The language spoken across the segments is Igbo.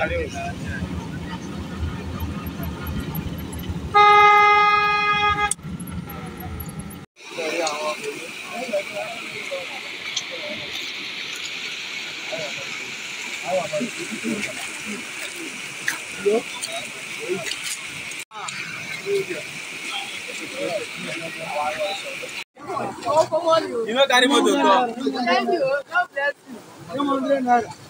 You know, Thank you. God bless you.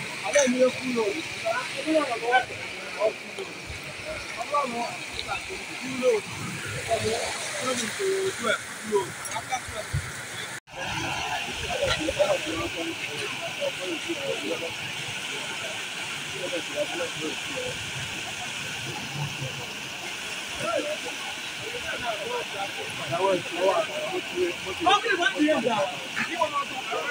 Ọkùnrin wọn ti yẹ gbà, ìwọ náà tó.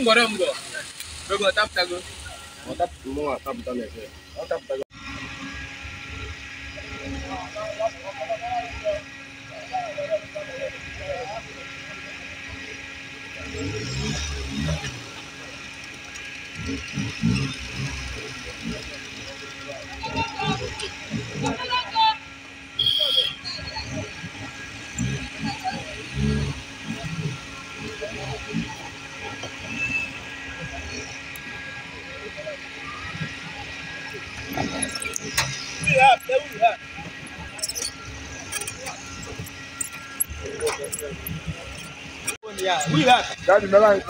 Ngorombo. Rogo tap tago. tap mo tap tale. Mo tap tago. Thank you. Yeah, we have. Daddy, Melanie.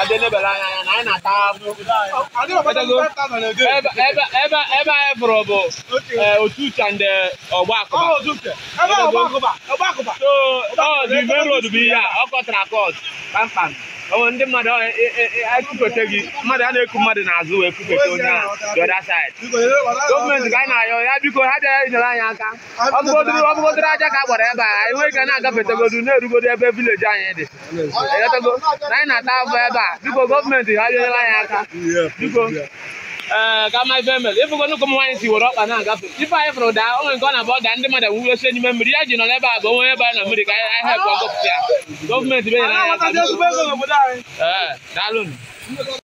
kade ne bela na anyị na-ata ahụ ebe anyị fụrụ bụ otu uche ndị ọgbakụba so ọ dị main road bụ ihe a ọ kọtara akọt kpamkpam ndị mmadụ e, e, e, ekupete gị mmadụ a na-eku mmadụ n'azụ wee kupete onye ahụ the other gọọmenti ka anyị na-ayọ ya biko ha bịara inyere anyị aka ọbụgodoro aja ka a gbara ebe a anyị nweghị ka na-agafetegodu na-erugodo ebe vileji anyị dị anyị na-ata afọ ebe a biko gọọmenti ha nyere anyị aka biko ee eh, ka ma ife mere ịfụgonu ụmụ nwaanyị si were ọkpa na-agafe ife anyị fụrụ daa onwe nke ọ na-abụ ọda ndị mmadụ nwuru ose n'ime mmiri ya ji nọ n'ebe a bụ onwe ebe a na mmiri ka a anyị hepụ ọgọpụta ya gọọmenti be nyere anyị aka daalụ